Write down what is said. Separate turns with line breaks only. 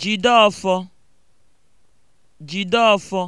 Jide ọfọ,